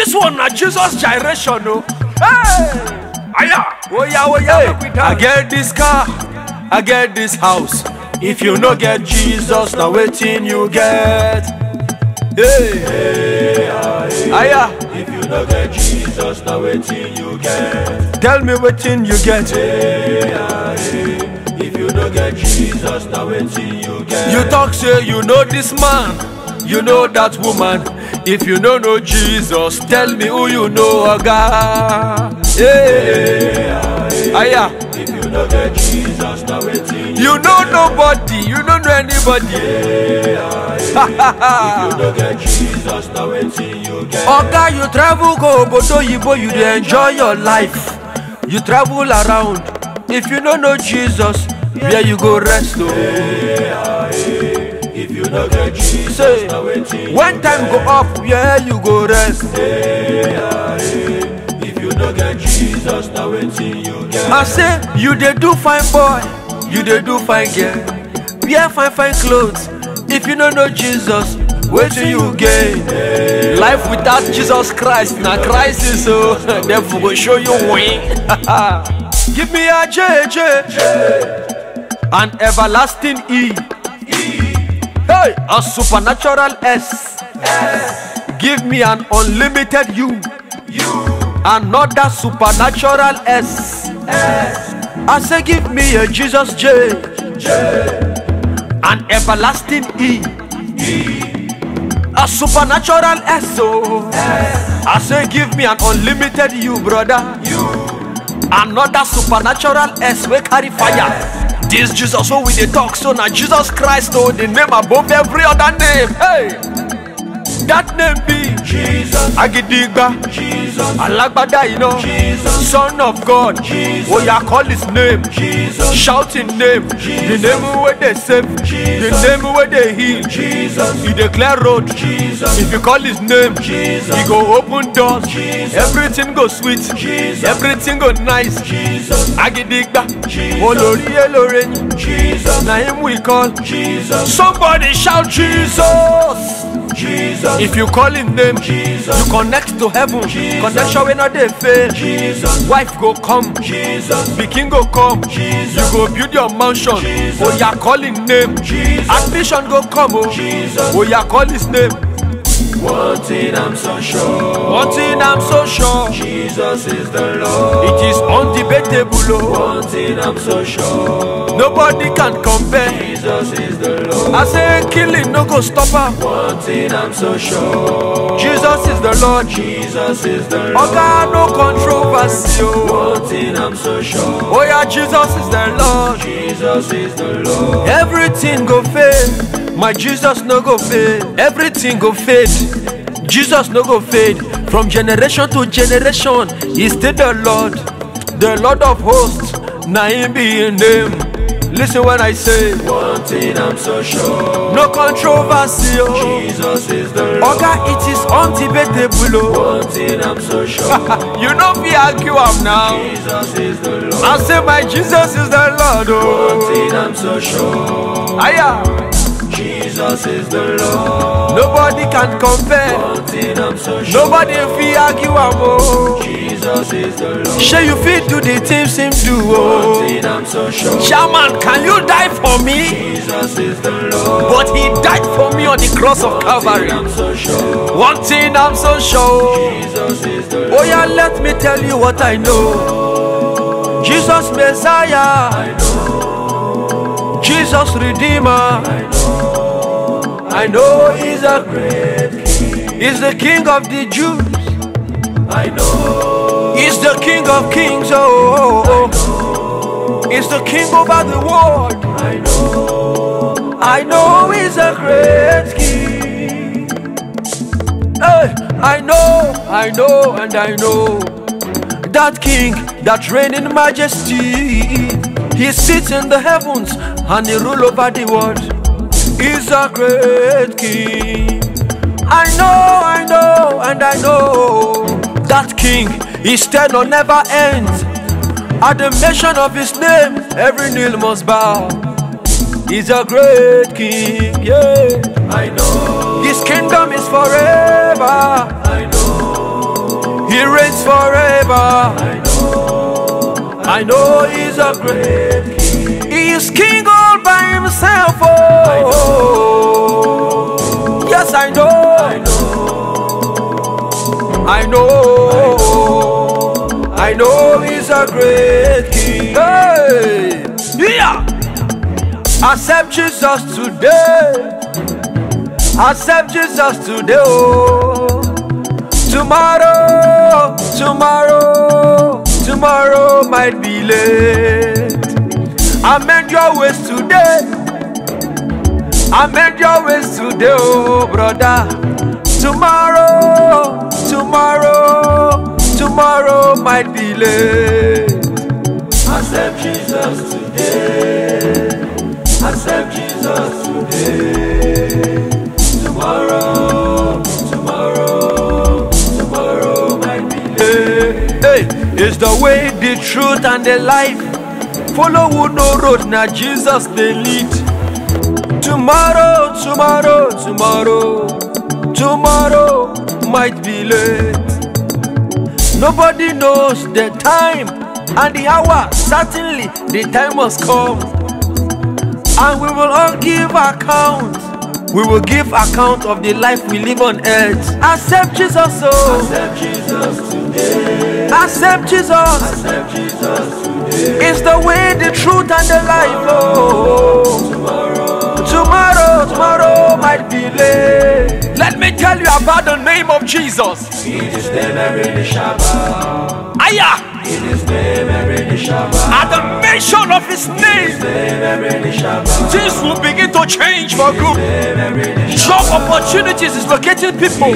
This one na Jesus gyration o. Hey! Aya! Oya oya make we dance. I get this car, I get this house. If you no get Jesus, na wetin you get? Hey! hey Aya! If you no get Jesus, na wetin you get? Tell me wetin you get. hey. If you no get Jesus, na wetin you get? You talk say you know this man you know that woman. If you don't know Jesus, tell me who you know, Oga. Yeah. Aya. If you know get Jesus, now waiting. You know nobody, you don't know anybody. Yeah. if you don't get Jesus, now waiting you Oga, you travel go Obodo Yibo, you dey enjoy your life. You travel around. If you don't know Jesus, where you go rest? Oh. Yeah. Say, When time go up, yeah, you go rest If you no get Jesus, na wetin you get I say, you dey do fine boy, you dey do fine girl Wear fine fine clothes, if you no know Jesus wetin you gain life without jesus christ na crisis o oh. dem for go show you win give me ajeje an everlasting e. Hey, a supernatural S. S. Give me an unlimited U. U. Another supernatural S. S. I say, give me a Jesus J. J. An everlasting E. E. A supernatural S. O. Oh. S. I say, give me an unlimited U, brother. U. Another supernatural S. We carry fire. S. This Jesus, so we they talk so now Jesus Christ, oh, the name above every other name. Hey! that name be Jesus. Agidigba. Jesus. Alagbada iná. Jesus. Son of God. Jesus. Oya oh, call his name. Jesus. Shout name. Jesus. The name wey dey save. Jesus. The name wey dey heal. Jesus. He dey clear road. Jesus. If you call his name. Jesus. He go open doors. Jesus. Everything go sweet. Jesus. Everything go nice. Jesus. Agidigba. Jesus. Olori Eloreyin. Jesus. Na him we call. Jesus. Somebody shout Jesus. Jesus. If you call His name, Jesus. you connect to heaven. Jesus. Connection when not fail. Jesus. Wife go come, Jesus. Peking go come. Jesus. You go build your mansion. Jesus. Oh, you call name. Jesus. Ambition go come. Oh, Jesus. oh you yeah, call his name. One thing I'm so sure. One thing I'm so sure. Jesus is the Lord. It is undebatable. One oh. thing I'm so sure. Nobody can compare. Jesus is the Lord. I say killing no go stop her. One thing I'm so sure. Jesus is the Lord. Jesus is the Lord. Oga no controversy. One oh. thing I'm so sure. Oh yeah, Jesus is the Lord. Jesus is the Lord. Everything go fail my jesus no go fade everything go fade jesus no go fade from generation to generation he still the lord the lord of hosts na him be him name lis when i say one thing i'm so sure no controversy oh. jesus is the lord oga it is undebatable oh. one thing i'm so sure you no fit argue am now jesus is the lord i say my jesus is the lord oh. one thing i'm so sure. Aya. Jesus is the Lord. Nobody can compare. So sure Nobody fi argue am Jesus is the Lord. Shey you feel do the things him do thing I'm So sure Chairman, can you die for me? Jesus is the Lord. But he died for me on the cross of Calvary. So sure One thing I'm so sure. Jesus is the Lord. Oh yeah, let me tell you what I know. Jesus Messiah. I know. Jesus Redeemer. I know. I know he's a great king. He's the king of the Jews. I know. He's the king of kings. Oh, oh, oh. oh. He's the king over the world. I know. I know he's a great king. Hey, I know, I know, and I know. That king that reigns in majesty. He sits in the heavens and he rules over the world is a great king. I know, I know, and I know that king, his tenure never ends. At the mention of his name, every knee must bow. He's a great king, yeah. I know. His kingdom is forever. I know. He reigns forever. I know. I know he's a great king. He is king all by himself. I know, I know He's a great King. Hey, yeah. Accept Jesus today. Accept Jesus today. Oh. Tomorrow, tomorrow, tomorrow might be late. Amend your ways today. Amend your ways today, oh brother. Tomorrow. tomorrow, tomorrow might be late. Accept Jesus today. Accept Jesus today. Tomorrow, tomorrow, tomorrow might be late. Hey, eh, eh, hey, it's the way, the truth, and the life. Follow who no road, now Jesus they lead. Tomorrow, tomorrow, tomorrow, tomorrow. might be late. Nobody knows the time and the hour. Certainly, the time must come. And we will all give account. We will give account of the life we live on earth. Accept Jesus, oh. Accept Jesus today. Accept Jesus. Accept Jesus today. It's the way, the truth, and the life, oh. Tomorrow, tomorrow, tomorrow might be late. Let me tell you about name of Jesus. In Aya. At the mention of His name, things will begin to change for good. Job opportunities is locating people.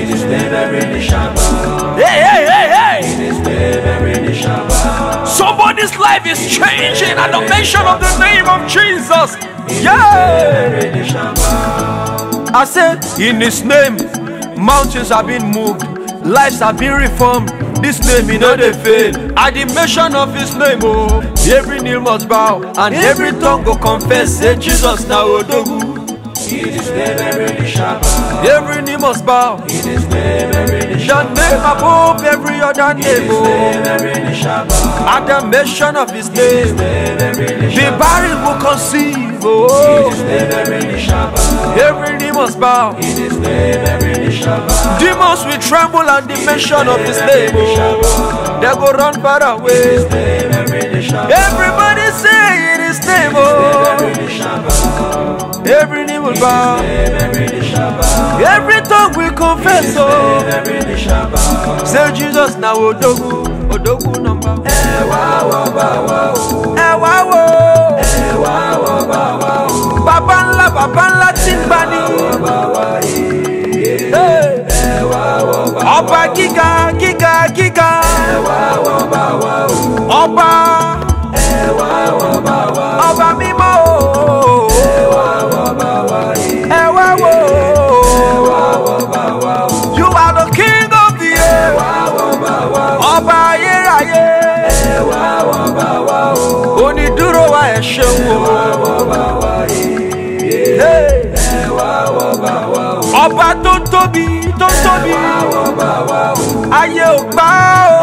Hey hey hey hey. Somebody's life is changing at the mention of the name of Jesus. Yeah. I said, in His name. mountains have been moved lives have been reformed this name e no dey fail at the mention of his name o oh, every knee must bow and every tongue go confess say jesus na odogu in his name every knee every knee must bow in his name every other name above every other name. Oh. At the mention of his name, the barren will conceive. Oh. Every knee must bow. Demons will tremble at the mention of his name. Oh. They go run far away. Everybody say in his name. Oh. every knee will bow, every tongue will confess. Oh, say Jesus now, Odogu, Odogu number. tóbi tó tóbi ayé ò gbà ó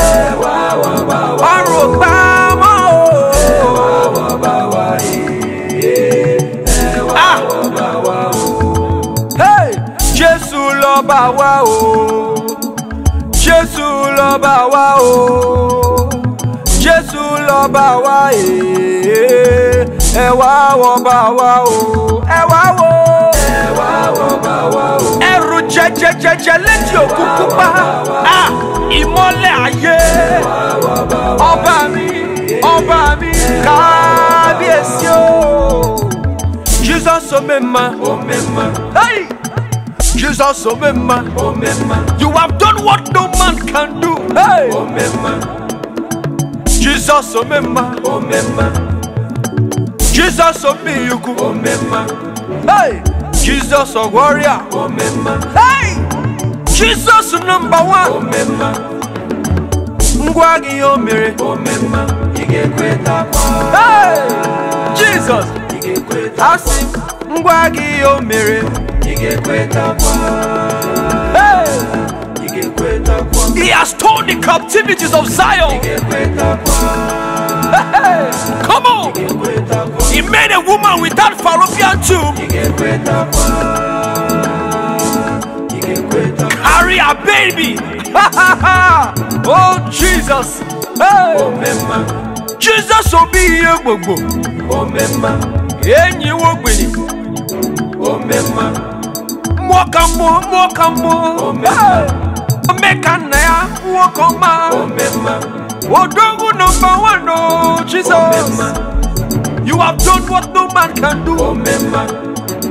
ọ̀run ò gbà mọ́ ó. Ah! Jésù lọ́ba wa o Jésù lọ́ba wa o Jésù lọ́ba wa ee ẹ wá wọ bá wa o ẹ wá wo. ẹ wá wọ bá wa o jẹjẹjẹjẹ létí òkú pupa ìmọ́lẹ̀ ayé ọba mi ọba mi kábíyèsí o Jesus omema hey Jesus omema you have done what no man can do hey Jesus omema Jesus omiyuku hey. Jesus a warrior. Hey! Jesus number one. Ngwa gị mere. Hey! Jesus. Asị ngwa gị o mere. Hey! He has torn the captivities of Zion. Come on. He made a woman without fallopian tube. Carry a baby. oh Jesus. Hey. Jesus will be here, Bobo. Oh wo gbeni. Mwaka mwo, mwaka mwo. Omeka Oh ya, Oh don't number one, oh Jesus. Oh, you have done what no man can do. Oh,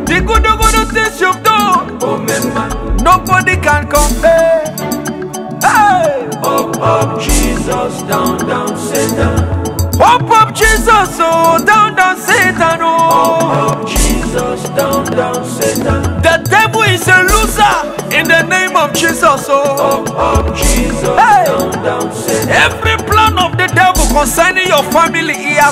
the good, good things you've done. Oh, Nobody can compare. Hey. Up, up, Jesus, down, down, Satan. Up, up, Jesus, oh, down, down, Satan, oh. Up, up, Jesus, down, down, Satan. The devil is a loser in the name of Jesus, oh. Up, up,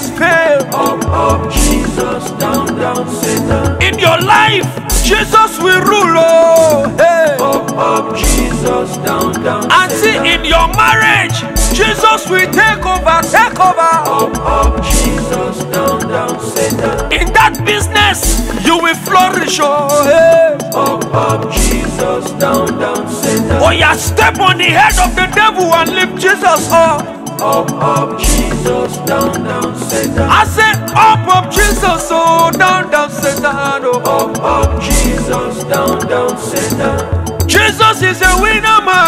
has Up, up, Jesus, down, down, Satan. In your life, Jesus will rule. Oh, hey. Up, up, Jesus, down, down. And see, in your marriage, Jesus will take over, take over. Up, up, Jesus, down, down, Satan. In that business, you will flourish. Oh, hey. Up, up, Jesus, down, down, Satan. Oh, yeah, step on the head of the devil and lift Jesus up. up, up, Jesus, down, down, Satan. I said, up, up, Jesus, oh, down, down, Satan. Oh, up, up, Jesus, down, down, Satan. Jesus is a winner, man.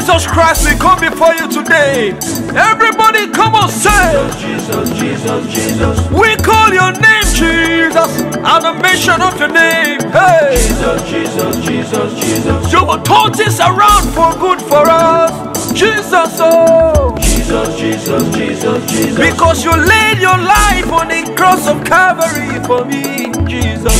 Jesus Christ we come before you today. Everybody, come on, say, Jesus, Jesus, Jesus. Jesus. We call your name, Jesus, and the mention of your name. Hey, Jesus, Jesus, Jesus, Jesus. You will turn this around for good for us, Jesus. Oh. Jesus, Jesus, Jesus, Jesus. Because you laid your life on the cross of Calvary for me. Jesus.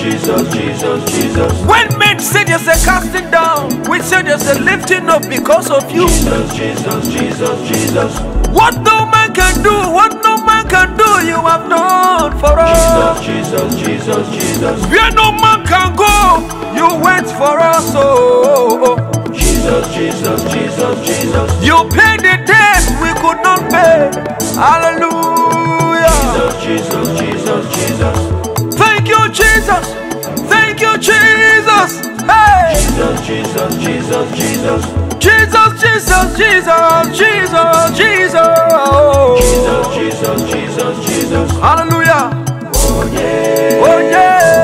Jesus, Jesus, Jesus, When men say you are casting down, we say there's a lifting up because of you. Jesus, Jesus, Jesus, Jesus. What no man can do, what no man can do, you have done for us. Jesus, Jesus, Jesus, Jesus. Where no man can go, you went for us. Oh, oh. Jesus, Jesus, Jesus, Jesus. You paid the debt we could not pay. Hallelujah. Jesus, Jesus, Jesus, Jesus. Thank you, Jesus. Thank you, Jesus. Hey. Jesus, Jesus, Jesus, Jesus. Jesus, Jesus, Jesus, Jesus, Jesus. Oh. Jesus, Jesus, Jesus, Jesus. Hallelujah. Oh yeah. Oh yeah.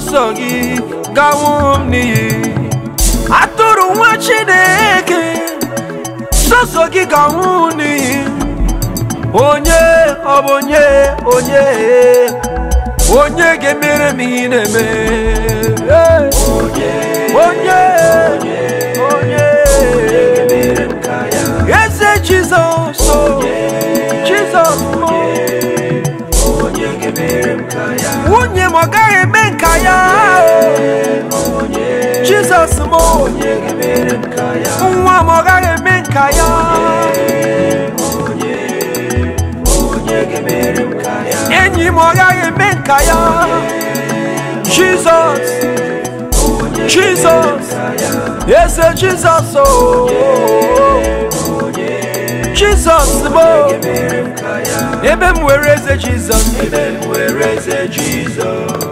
ọsọgị gawo m n'iyi atụrụ nwa chineke sọsọ gị gawo n'iyi onye ọ onye onye onye ga-emere m ihe na-eme onye Jesus, Jesus, m nwa m ọ gaghị eme nka enyi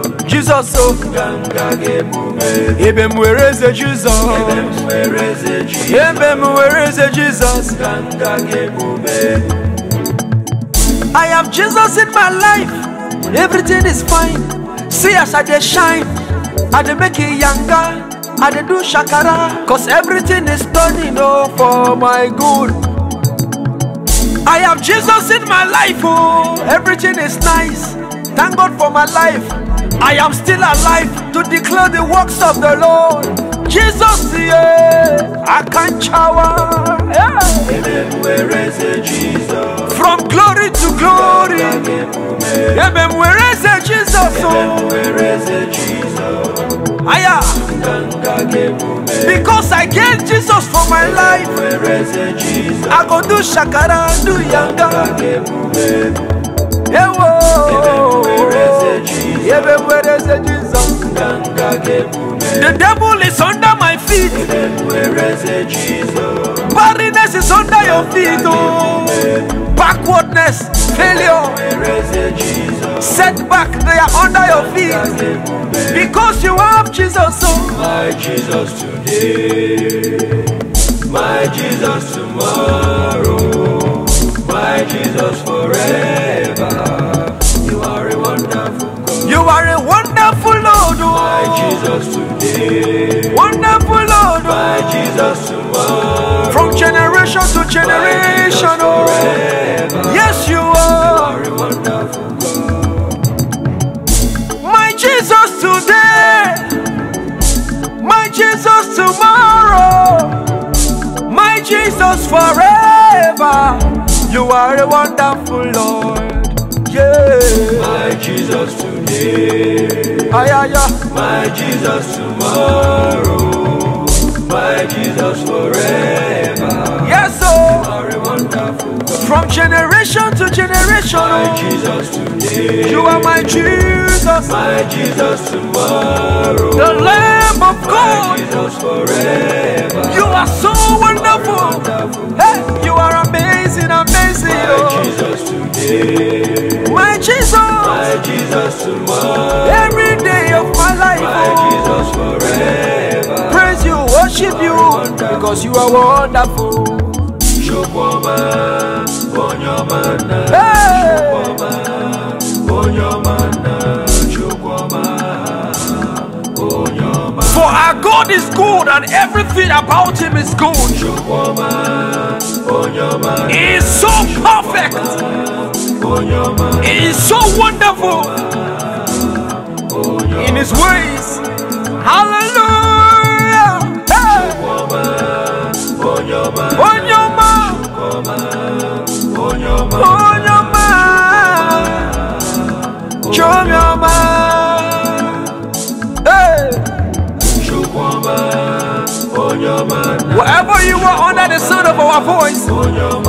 m Jesus, o ebe m were Jesus? Jizọs ebe m were I have Jesus in my life everything is fine see us I dey shine I dey make it younger I dey do shakara cause everything is turning oh for my good I have Jesus in my life, oh, everything is nice. Thank God for my life. I am still alive to declare the works of the Lord. Jesus, yeah, I can shower. From glory to glory. Ebem, where is it, Jesus? Oh. Aya. Because I gave Jesus for my life, I go do shakara, do yanga. Yeah, whoa. The devil is under my feet. Barrenness is under your feet. Oh. Backwardness, failure, setback, they are under your feet. Because you have Jesus. Oh. My Jesus today. My Jesus tomorrow. My Jesus forever. Jesus today. Wonderful Lord. By Jesus tomorrow. From generation to generation. Oh. Yes, you are. You are My Jesus today. My Jesus tomorrow. My Jesus forever. You are a wonderful Lord. Yeah. My Jesus today. Ay, My Jesus tomorrow. My Jesus forever. Yes, oh. From generation to generation. My oh. Jesus today. You are my Jesus. My Jesus tomorrow. The Lamb of my God. Jesus forever. You are so wonderful. wonderful. Hey, you are amazing, amazing. My oh. Jesus today my Jesus, my Jesus tomorrow. Every day of my life, my oh. Jesus forever. Praise you, worship you, because you are wonderful. For our God is good and everything about him is good. He is so perfect is so wonderful in His ways. Hallelujah. Hey. Onyoma. Onyoma. Onyoma. Hey. Wherever you are under the sound of our voice.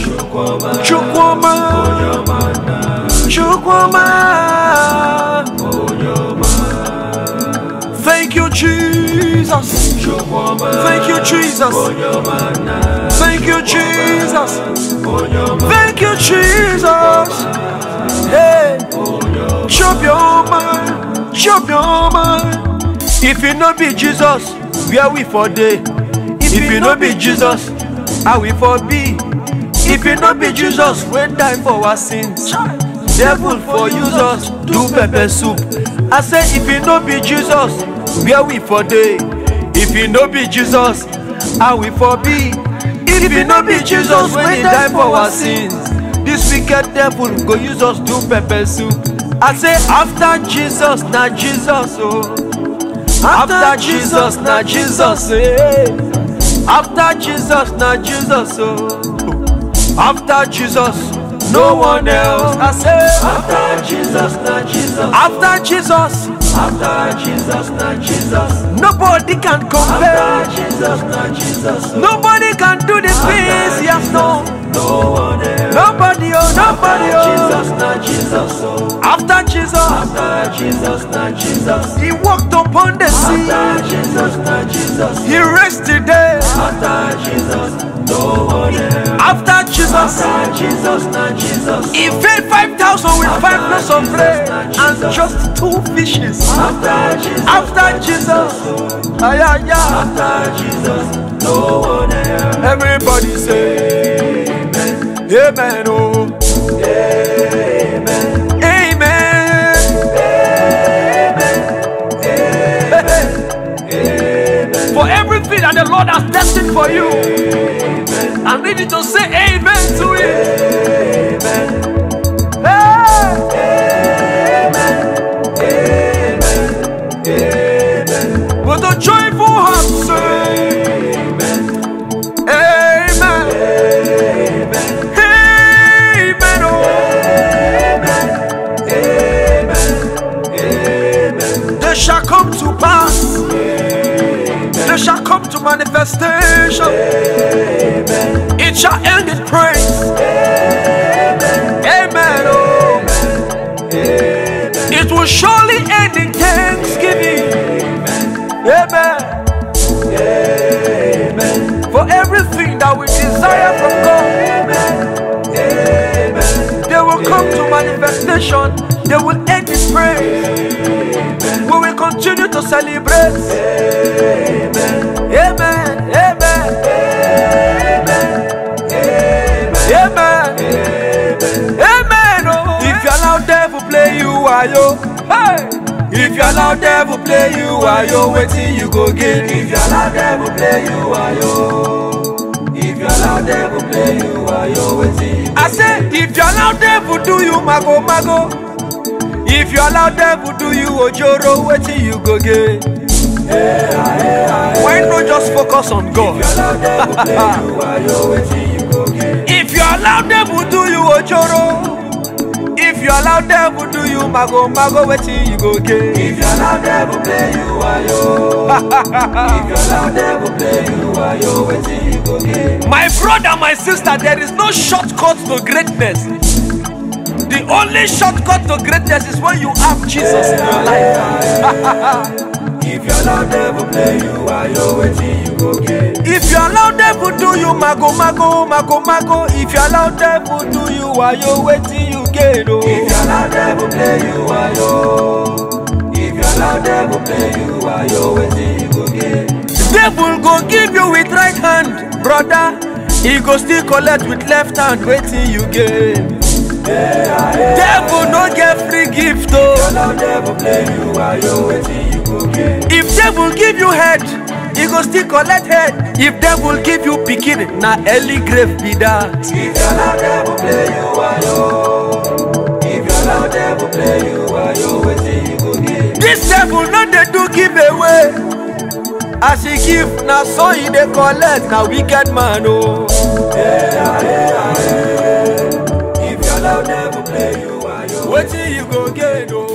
Chukwuma Chukwuma Thank you Jesus Thank you Jesus Thank you Jesus Thank you Jesus Hey Chop your mind Chop your mind If you not be Jesus where we for day If you not be Jesus how we for be if it not be jesus wey die for our sins devil for use us do pepper soup i say if it not be jesus where we for day? if it not be jesus how we for be if it not be jesus wey die for our sins This wicked devil go use us do pepper soup i say after jesus not jesus oh. after jesus not jesus eh. After Jesus, not Jesus, oh. After Jesus, no one else. I say, After Jesus, not Jesus. After Jesus, after Jesus, not Jesus. Nobody can compare. After Jesus, not Jesus. Nobody can do this things Yes, no. No one else. Nobody, oh, nobody, after oh. Jesus, not Jesus. Oh. After Jesus, after Jesus, not Jesus. He walked upon the sea. After Jesus, not Jesus. He rested there. After Jesus, no one After Jesus, After Jesus, not Jesus. He fed 5,000 with After five loaves of bread and just two fishes. After Jesus, After Jesus, ay, ay, ay. After Jesus, no one else. Everybody say, Amen. Amen. Oh. God has destined for you. I need you to say manifestation. Amen. It shall end in praise. Amen. Amen. Oh. Amen. It will surely end in thanksgiving. Amen. Amen. For everything that we desire from God, Amen. they will come to manifestation. They will end in praise. to celebrate. Amen. Amen. Amen. If you allow devil play you, are If you allow devil play you, are yo. Waiting you go get. If you allow devil play you, are yo. If you allow devil play you, are yo. Waiting I say if you allow devil do you, mago mago if you allow devil do you ojoro wetin you go get why no just focus on god if you allow devil do you ojoro if you allow devil do you mago mago wetin you go get if you allow devil play you wayo if you allow devil play you wayo wetin you go get my brother my sister there is no shortcut to greatness. The only shortcut to greatness is when you have Jesus in your life. if you allow devil play you, I know waiting you go get. If you allow devil do you mago mago mago mago. If you allow devil do you, I know waiting you get. Oh. If you allow devil play you, I know. If you allow devil play you, I know waiting you go get. Devil go give you with right hand, brother. He go still collect with left hand, waiting you get. Devil no get free gift oh. If devil give you head, e go still collect head. If devil give you pikin, na early grave be that. If devil This devil no dey do give away. as he give na so he dey collect na wicked man o. Oh. Yeah, yeah, yeah. go get go. Oh.